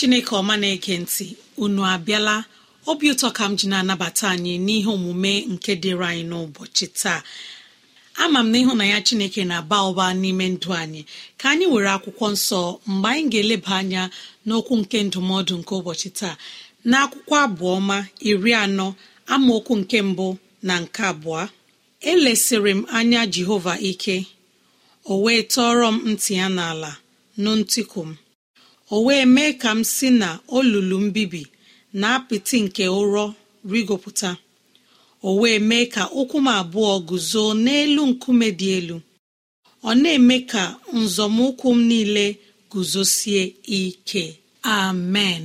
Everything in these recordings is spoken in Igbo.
chineke ọma na ege ntị unu abịala obi ụtọ ka m ji na-anabata anyị n'ihe omume nke dịrị anyị n'ụbọchị taa ama m na ya chineke na-aba ụba n'ime ndụ anyị ka anyị were akwụkwọ nsọ mgbe anyị ga-eleba anya n'okwu nke ndụmọdụ nke ụbọchị taa na akwụkwọ abụọma iri anọ amaokwu nke mbụ na nke abụọ elesịrị m anya jehova ike o wee tọọrọ m ntị ya n'ala nụ ntịkụ m o wee mee ka m si na olulu mbibi na apịtị nke ụrọ rigopụta o wee mee ka ụkwụ m abụọ guzo n'elu nkume dị elu ọ na-eme ka nzọmụkwụ m niile guzosie ike amen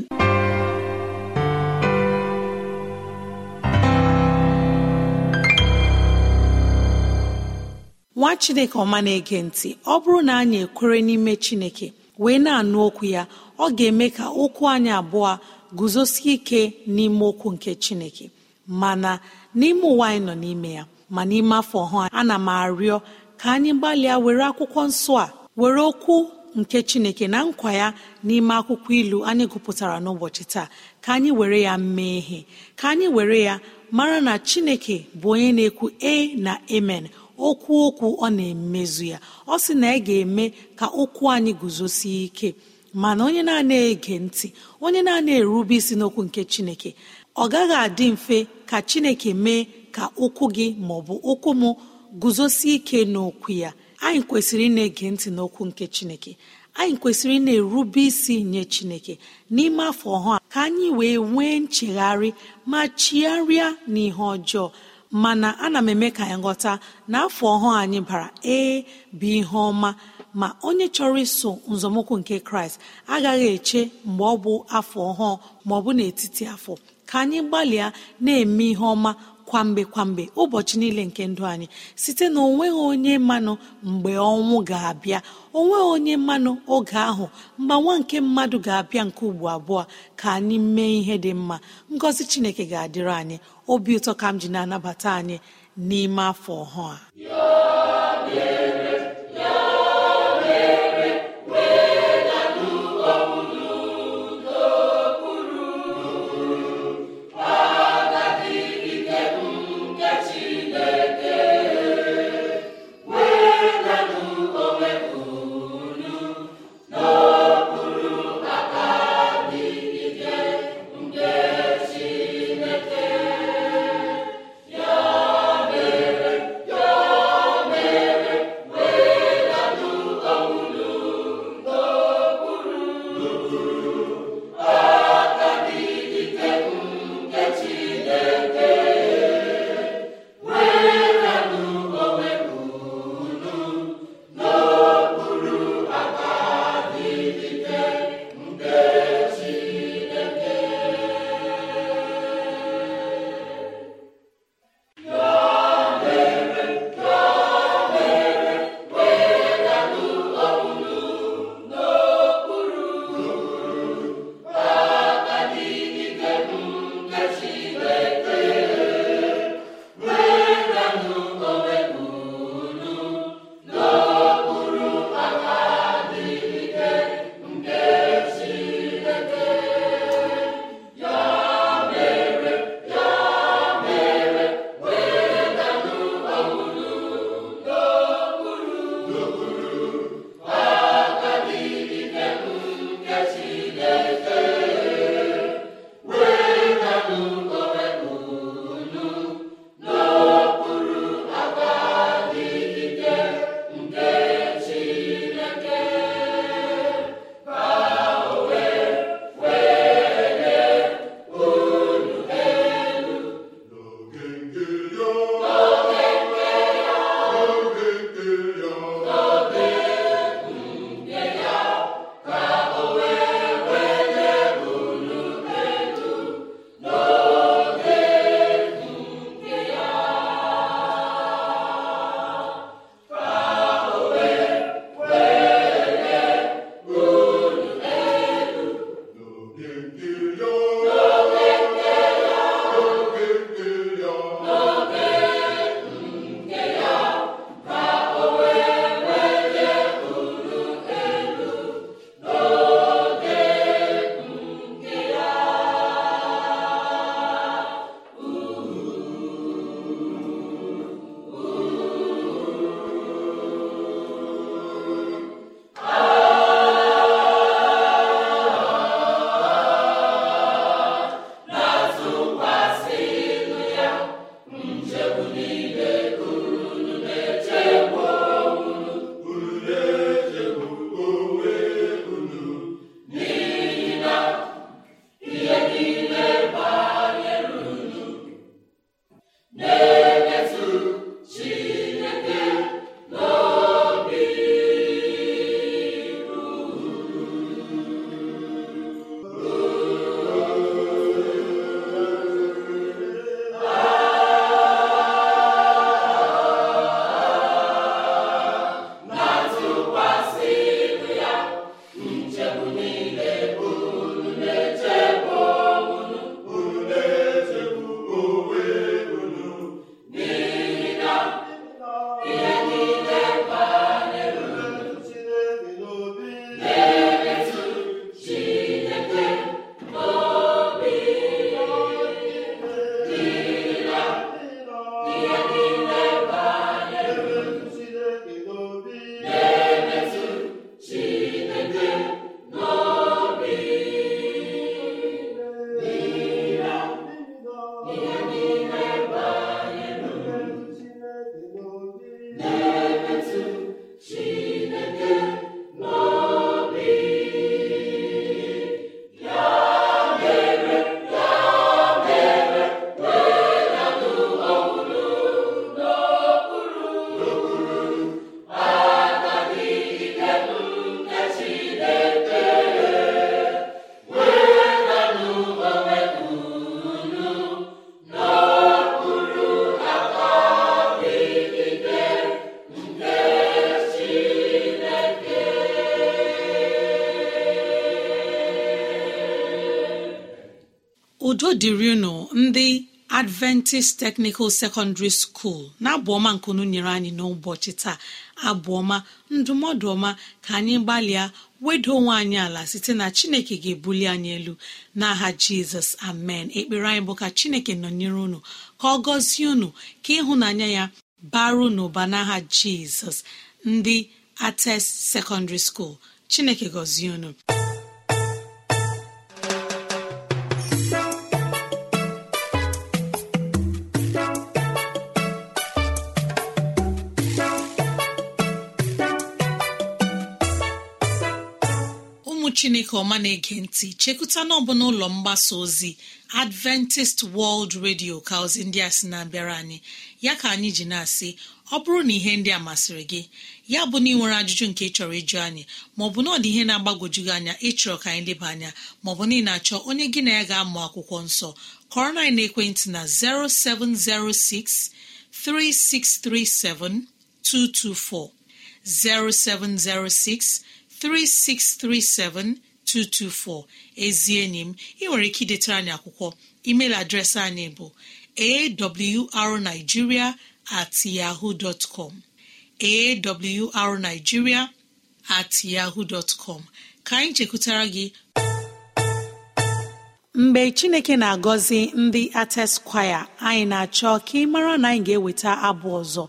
nwa chineke ọma na-ege ntị ọ bụrụ na anyị ekwere n'ime chineke wee na-anụ okwu ya ọ ga-eme ka okwu anyị abụọ guzosie ike n'ime okwu nke chineke mana n'ime ụwa anyị nọ n'ime ya ma n'ime afọ ọhụụ ana m arịọ ka anyị gbalịa were akwụkwọ nsọ a were okwu nke chineke na nkwa ya n'ime akwụkwọ ilu anyị gụpụtara n'ụbọchị taa ka anyị were ya mee ihe ka anyị were ya mara na chineke bụ onye na-ekwu e na amen okwu okwu ọ na-emezu ya ọ sị na ị ga-eme ka okwu anyị guzosie ike mana onye na-ana ege ntị onye na-ana erube isi n'okwu nke chineke ọ gaghị adị mfe ka chineke mee ka ụkwụ gị maọbụ ụkwụ m guzosie ike n'okwu ya anyị kwesịrị ị na-ege ntị n'okwu nke chineke anyị kwesịrị ị na-erube isi nye chineke n'ime afọ ọhụụ ka anyị wee nwee nchegharị ma chigharịa n'ihe ọjọọ mana ana m eme ka anyị ghọta na afọ ọhụụ anyị bara ee bụ ihe ọma ma onye chọrọ iso nzọmụkwụ nke kraịst agaghị eche mgbe ọ bụ afọ ọhụụ ma ọ bụ n'etiti afọ ka anyị gbalịa na-eme ihe ọma kwamgbe kwamgbe ụbọchị niile nke ndụ anyị site na onweghị onye mmanụ mgbe ọnwụ ga-abịa onweghị onye mmanụ oge ahụ nwa nke mmadụ ga-abịa nke ugbo abụọ ka anyị mee ihe dị mma ngọzi chineke ga-adịrị anyị obi ụtọ ka m ji na-anabata anyị n'ime afọ ọhụụ a niile dịrị unu ndị adventist technical secondary school na abụọma nkunu nyere anyị n'ụbọchị taa abụọma ndụmọdụ ọma ka anyị gbalịa weda onwe anyị ala site na chineke ga-ebuli anyị elu n'aha jizọs amen ekpere anyị bụ ka chineke nọnyere unu ka ọ gọzie unu ka ịhụnanya ya baru n'ụba n'aha jizọs ndị ates secondary school chineke gọzie unu chineke ọma na-ege ntị chekụta n'ọbụla ụlọ mgbasa ozi adventist world radio ka ozi ndị a sị na-abịara anyị ya ka anyị ji na-asị ọ bụrụ na ihe ndị a masịrị gị ya bụ na ị nwere ajụjụ nke ị chọrọ ịjụ anyị maọbụ na ọ dị ihe na-agbagojugị anya ịchọrọ ka anyị leba anya maọbụ na ị na-achọ onye gị na ya ga-amụ akwụkwọ nsọ kọrọ na ekwentị na 17063637224 0706 3637224 ezi enyi m ị nwere ike idetara anyị akwụkwọ email adreesị anyị bụ arigiria at yahoo at yahoo dot ka anyị chekwutara gị mgbe chineke na-agọzi ndị ateskwaya anyị na-achọ ka ị mara na anyị ga-eweta abụ ọzọ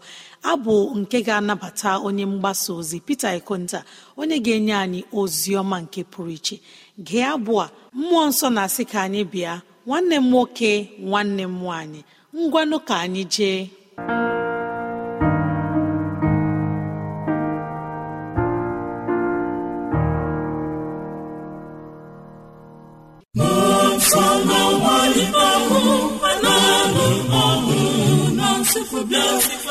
abụ nke ga-anabata onye mgbasa ozi Peter Ikonta onye ga-enye anyị ozi ọma nke pụrụ iche gee abụ a mmụọ nsọ na-asị ka anyị bịa nwanne m nwoke nwanne m nwaanyị ngwanụ ka anyị jee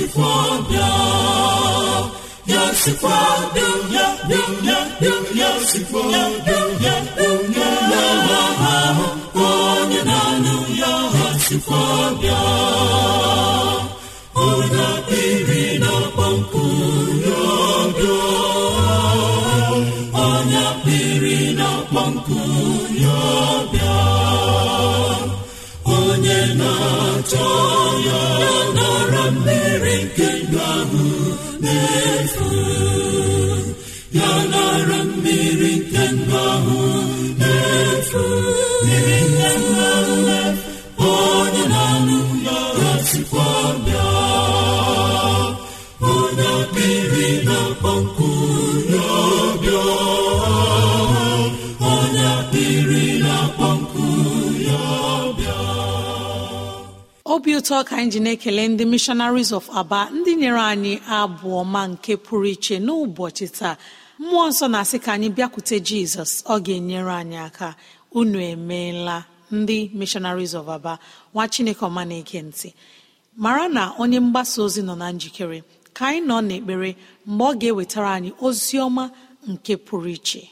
sikwa bịa ya sikwa bịa ya bịa ya bịa ya sikwa bịa ya onye na-awa ahụ onye na-anụ ya ha sikwa bịa onye akpịrị na-akpọ ya bịa onye akpịrị na-akpọ ya bịa onye na-achọ ya ndụ ahụ na-efu ya nara mmiri nke ndụ ahụ na-efu mmiri obi ụtọ ka anyị ji na-ekele ndị missionaries of aba ndị nyere anyị abụọ ma nke pụrụ iche n'ụbọchị taa mmụọ nsọ na-asị ka anyị bịakwute jizọs ọ ga-enyere anyị aka unu emeela ndị missionaries of aba nwa chineke ọma na mara na onye mgbasa ozi nọ na njikere ka anyị nọ n'ekpere mgbe ọ ga-ewetara anyị ozi ọma nke pụrụ iche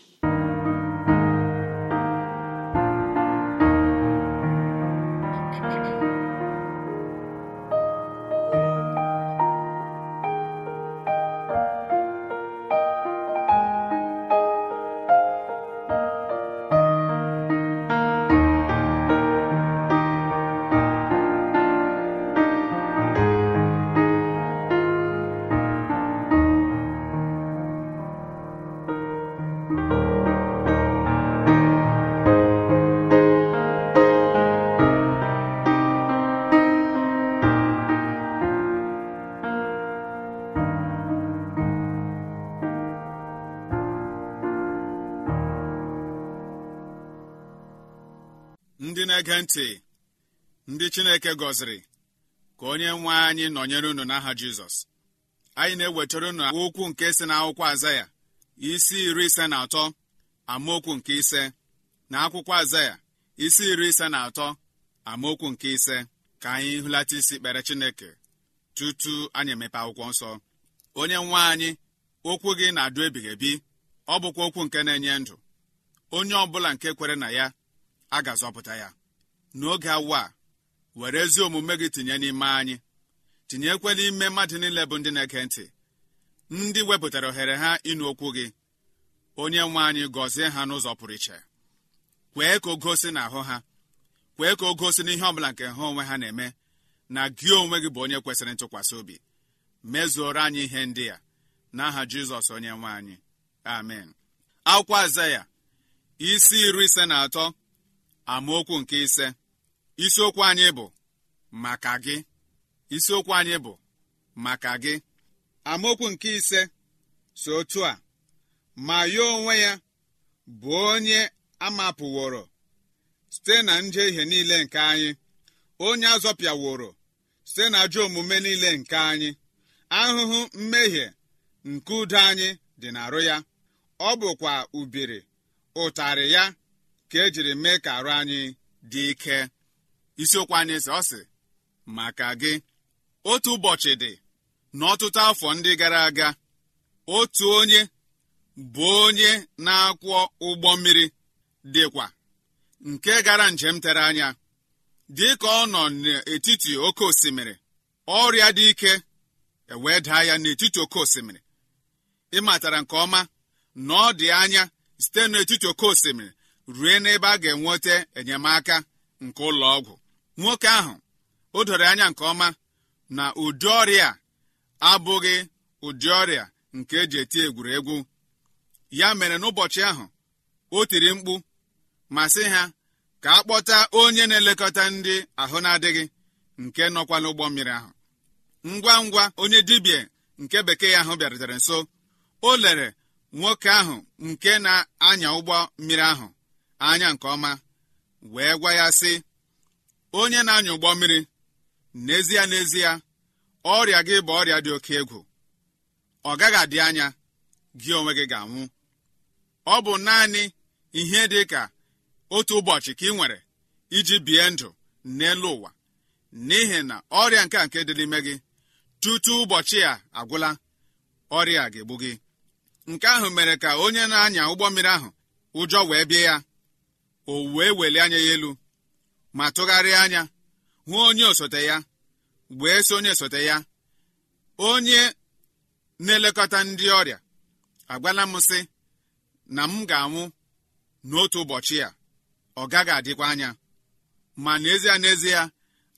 na-ege ntị ndị Chineke gọziri ka onye nwe anyị nọnyere unu n'aha Jizọs anyị na-ewetara unu okwu nke si n'akwụkwọ Azaya isi iri ise na atọ amaokwu nke ise na akwụkwọ Azaya isi iri ise na atọ amaokwu nke ise ka anyị hụlata isi kpere Chineke tutu anyị emepe akwụkwọ nsọ onye nwe anyị okwu gị na-adụ ebighị ebi ọ bụkwa okwu nke na-enye ndụ onye ọ bụla nke kwere na ya a ga-azọpụta ya n'oge awa were ezi omume gị tinye n'ime anyị tinyekwela ime mmadụ niile bụ ndị na-eke ntị ndị wepụtara ohere ha ịnụ okwu gị onye nwe anyị gọzie ha n'ụzọ pụrụ iche kwee ka o gosi na ahụ ha kwee ka o gosi n'ihe ọ nke ha onwe ha na-eme na gị onwe gị bụ onye kwesịrị ntụkwasị obi mezuoro anyị ihe ndị a, n'aha jizọs onye nwe anyị amen akwụkwọ aza isi iri ise na atọ amaokwu nke ise isiokwu anyị bụ maka gị isiokwu anyị bụ maka gị amaokwu nke ise so otu a ma ya onwe ya bụ onye amapụworo site na njehie niile nke anyị onye azọpịaworo site na ajọ omume niile nke anyị ahụhụ mmehie nke udo anyị dị n'arụ ya ọ bụkwa ubiri ụtarị ya ka ejiri mee ka arụ anyị dị ike isiokwu anyị sị ọ sị maka gị otu ụbọchị dị n'ọtụtụ afọ ndị gara aga otu onye bụ onye na-akwọ ụgbọ mmiri dịkwa nke gara njem tere anya dị ka ọ nọ n'etiti oke osimiri ọrịa dị ike ewee daa ya n'etiti oke osimiri ịmatara nke ọma na dị anya site n'etiti oke osimiri rue n'ebe a ga-enweta enyemaka nke ụlọ ọgwụ nwoke ahụ o doro anya nke ọma na ụdị ọrịa abụghị ụdị ọrịa nke eji eti egwuregwu ya mere n'ụbọchị ahụ o tiri mkpu ma sị ha ka a kpọta onye na-elekọta ndị ahụ na-adịghị nke nọkwa n'ụgbọ mmiri ahụ ngwa ngwa onye dibịa nke bekee ahụ bịarutere nso o lere nwoke ahụ nke na-anya ụgbọ mmiri ahụ anya nke ọma wee gwa ya sị onye na-anya ụgbọ mmiri n'ezie n'ezie ọrịa gị bụ ọrịa dị oke egwu ọ gaghị adị anya gị onwe gị ga-anwụ ọ bụ naanị ihe dị ka otu ụbọchị ka ị nwere iji bie ndụ n'elu ụwa n'ihi na ọrịa nke a nke dị n'ime gị tutu ụbọchị a agwụla ọrịa ga-egbu gị nke ahụ mere ka onye na-anya ụgbọ mmiri ahụ ụjọ wee bie ya o wee welie anya ya elu ma tụgharịa anya hụ onye osote ya wee sị onye osote ya onye na-elekọta ndị ọrịa agwala m sị na m ga-anwụ n'otu ụbọchị ya ọ gaghị adịkwa anya ma n'ezie n'ezie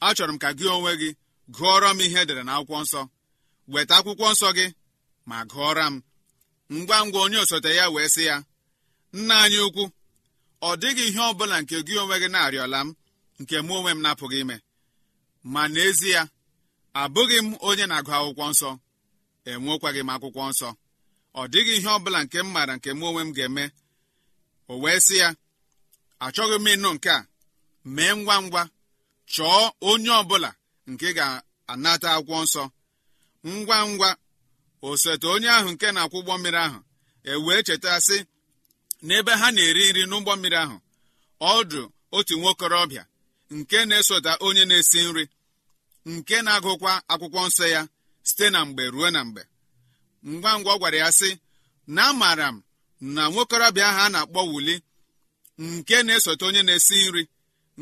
achọrọ m ka gị onwe gị gụọrọ m ihe edere na akwụkwọ nsọ weta akwụkwọ nsọ gị ma gụọra m ngwa ngwa onye osote ya wee sị ya nna anyị ukwu ọ dịghị ihe ọ bụla nke gị onwe gị na-arịọla m nke mụ onwe m na-apụghị ime ma n'ezie abụghị m onye na-agụ akwụkwọ nsọ enwekwaghị m akwụkwọ nsọ ọ dịghị ihe ọ bụla nke m maara nke mụ onwe m ga-eme o wee sị ya achọghị m ịnụ nke a mee ngwa ngwa chọọ onye ọ bụla nke ga-anata akwụkwọ nsọ ngwa ngwa osote onye ahụ nke na-akwụ ụgbọ mmiri ahụ e wee cheta sị n'ebe ha na-eri nri n'ụgbọ mmiri ahụ ọdụ otu nwokorobịa nke na-esota onye na-esi nri nke na-agụkwa akwụkwọ nsọ ya site na mgbe ruo na mgbe ngwa ngwa ọ gwara ya sị na amaara m na nwokorobịa ahụ a na-akpọ wuli nke na-esote onye na-esi nri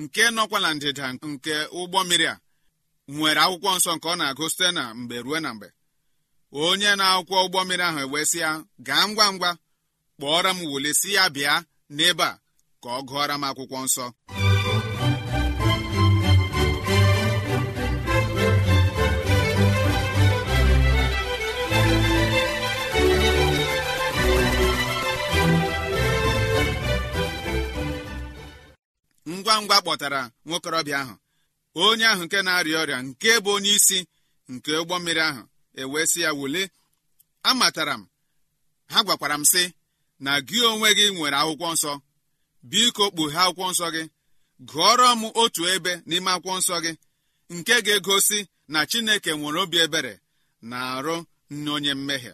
nke nọkwa na ndịda nke ụgbọ mmiri a nwere akwụkwọ nsọ nke ọ na-agụ site na mgbe ruo na mgbe onye na-akwụkwọ ụgbọ mmiri ahụ ewesịa gaa ngwa ngwa kpọọrọ m wole si ya bịa n'ebe a ka ọ gụọra m akwụkwọ nsọ ngwa ngwa kpọtara nwokorobịa ahụ onye ahụ nke na-arịa ọrịa nke bụ onye isi nke ụgbọ mmiri ahụ ewee sị ya wule amatara m ha gwakwara m sị na gị onwe gị nwere akwụkwọ nsọ biko kpughe akwụkwọ nsọ gị gụọrọ m otu ebe n'ime akwụkwọ nsọ gị nke ga-egosi na chineke nwere obi ebere na-arụ nne mmehie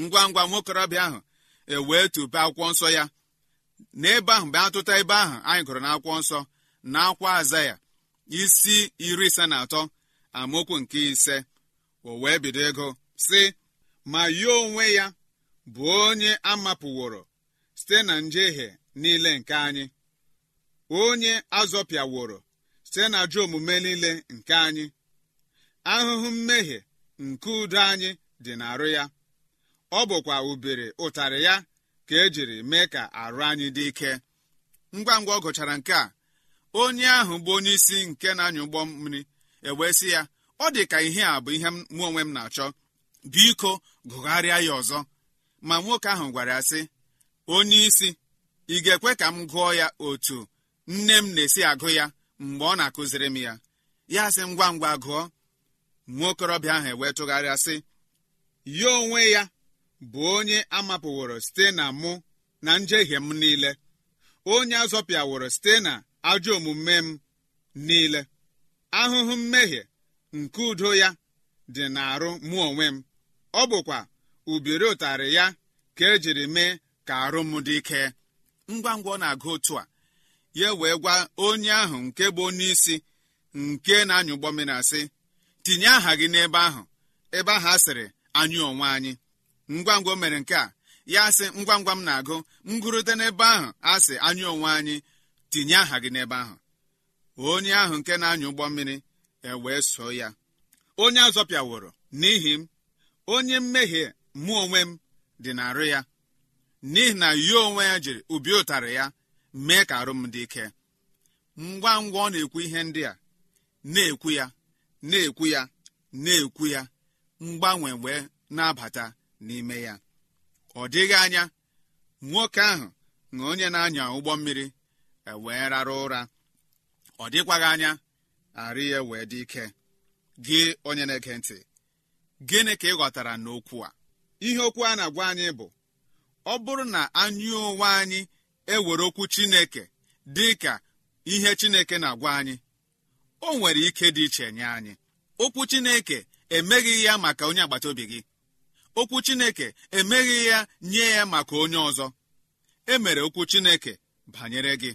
ngwa ngwa nwokorobịa ahụ ewee tupe akwụkwọ nsọ ya n'ebe ahụ mgbe atụta ebe ahụ anyị gụrụ na nsọ na akwa aza ya isi iri ise na atọ amaokwu nke ise o wee bido ego si ma ya onwe ya bụ onye a mapụworo site na njehie niile nke anyị onye azọpịaworo site na ajọ omume niile nke anyị ahụhụ mmehie nke udo anyị dị n'arụ ya ọ bụkwa ubere ụtarị ya ka ejiri mee ka arụ anyị dị ike ngwa ngwa ọ gụchara nke a onye ahụ bụ onye isi nke na-anya ụgbọ mmiri ewee sị ya ọ dị ka ihe a bụ ihe mụ onwe m na-achọ biko gụgharịa ya ọzọ ma nwoke ahụ gwara ya sị onye isi ị ga-ekwe ka m gụọ ya otu nne m na-esi agụ ya mgbe ọ na-akụziri m ya ya sị ngwa ngwa gụọ Nwoke okorobịa ahụ ewee sị ya onwe ya bụ onye amapụworo site na mụ na njehie m niile onye azọpịaworo site na ajọ omume m niile ahụhụ mmehie nke udo ya dị n'arụ mụ onwe m ọ bụkwa ubiri ụtarị ya ka ejiri mee ka arụ m dị ike ngwa ngwa ọ na-agụ otu a ya wee gwa onye ahụ nke bụ onye isi nke na-anya ụgbọ mmiri asị tinye aha gị n'ebe ahụ ebe ahụ a sịrị anyị onwe anyị ngwa ngwa o mere nke a ya sị ngwa ngwa m na-agụ ngụrụte n'ebe ahụ asị anyị onwe anyị tinye aha gị n'ebe ahụ onye ahụ nke na-anya ụgbọ mmiri ewee so ya onye azọpịaworo n'ihi m onye mmehie mụ onwe m dị na-arụ ya n'ihi na ya onwe ya jiri obi ụtarị ya mee ka arụ dị ike ngwa ngwa ọ na-ekwu ihe ndị a na-ekwu ya na-ekwu ya na-ekwu ya mgbanwe wee na-abata n'ime ya ọ dịghị anya nwoke ahụ na onye na-anya ụgbọ mmiri e wee rara ụra ọ dịkwaghị anya arụ ya wee dị ike gị onye na-ege ntị gịnị ka ị ghọtara n'okwu a ihe okwu a na-agwa anyị bụ ọ bụrụ na anyị onwe anyị ewere okwu chineke dị ka ihe chineke na-agwa anyị o nwere ike dị iche nye anyị okwu chineke emeghị ya maka onye agbata obi gị okwu chineke emeghị ya nye ya maka onye ọzọ e mere okwu chineke banyere gị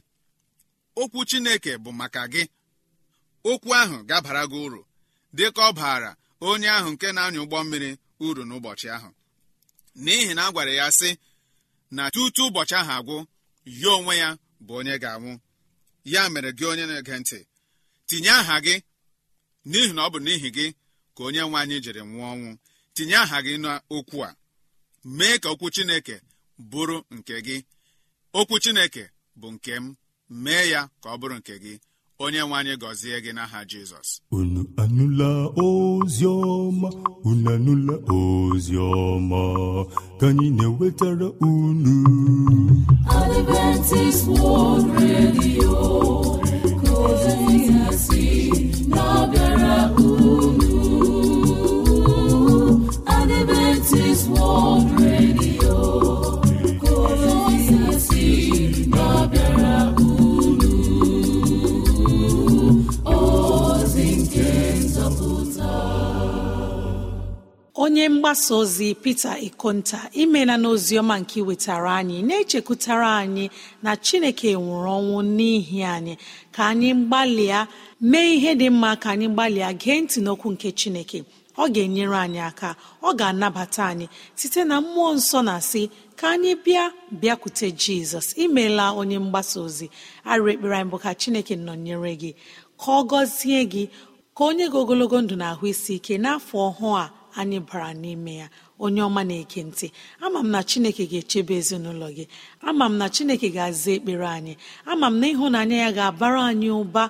okwu chineke bụ maka gị okwu ahụ gabara gị uru dịka ọ baara onye ahụ nke na-anya ụgbọ mmiri uru n'ụbọchị ahụ n'ihi na a gwara ya sị na tutu ụbọchị ahụ agwụ ya onwe ya bụ onye ga-anwụ ya mere gị onye na-ege ntị tinye aha gị n'ihi na ọ bụ n'ihi gị ka onye nwe anyị jiri nwụọ ọnwụ tinye aha gị n'okwu a mee ka okwu chineke bụrụ nke gị okwu chineke bụ nke m mee ya ka ọ bụrụ nke gị onye nwe anyị gọzie gị n'aha jizọs unu anụla ozi ọma unu anụla ozi ọma ka anyị na-ewetara unu Adventist World Radio ka ozi si na onye mgbasa ozi pete ikonta imela n'oziọma nke wetara anyị na-echekwutara anyị na chineke nwụrụ ọnwụ n'ihi anyị ka anyị gbalịa mee ihe dị mma ka anyị gbalịa gee ntị n'okwu nke chineke ọ ga-enyere anyị aka ọ ga-anabata anyị site na mmụọ nsọ na asị ka anyị bịa bịakwute jizọs imela onye mgbasa ozi arịrị ekpere anyị bụ ka chineke nọnyere gị ka ọ gọzie gị ka onye gị ogologo ndụ na ahụ isi ike n'afọ ọhụụ a anyị bara n'ime ya onye ọma na-eke ntị ama m na chineke ga-echebe ezinụlọ gị ama m na chineke ga-aza ekpere anyị ama m na ịhụnanya ya ga-abara anyị ụba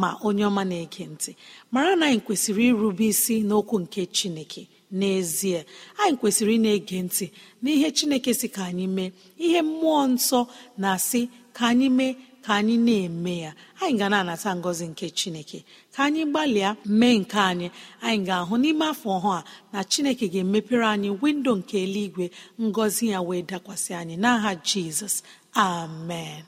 ma onye ọma na-eke ntị mara na anyị kwesịrị irube isi n'okwu nke chineke n'ezie anyị kwesịrị ị na-ege ntị n'ihe chineke si ka anyị mee ihe mmụọ nsọ na-asị ka anyị mee ka anyị na-eme ya anyị ga na-anata ngọzi nke chineke ka anyị gbalịa mee nke anyị anyị ga-ahụ n'ime afọ ọhụụ a na chineke ga-emepere anyị windo nke eluigwe ngọzi ya wee dakwasị anyị n'aha jizọs amen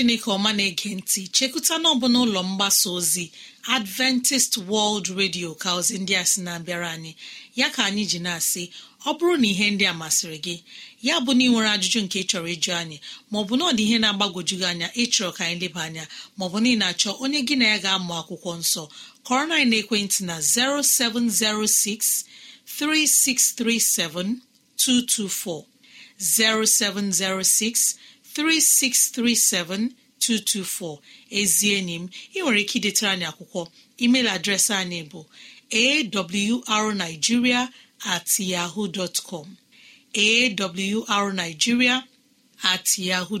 chineke ọma na-ege ntị chekụta n'ọbụla ụlọ mgbasa ozi adventist world radio ka ozi ndị a sị na-abịara anyị ya ka anyị ji na-asị ọ bụrụ na ihe ndị a masịrị gị ya bụ na ị nwere ajụjụ nke ị chọrọ ịjụ anyị maọbụ na ọ dị ihe na-agbagwoju gị anya ịchọrọ ka anyị leba anya maọbụ na ị na-achọ onye gị na ya ga-amụ akwụkwọ nsọ kọrọ na ekwentị na 0706 0706 3637224 ezi enyi m ị nwere ike idetara anyị akwụkwọ email adreesị anyị bụ awrnigeria at yahoo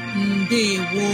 Ndewo